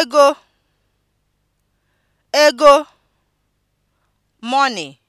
ego (ego) money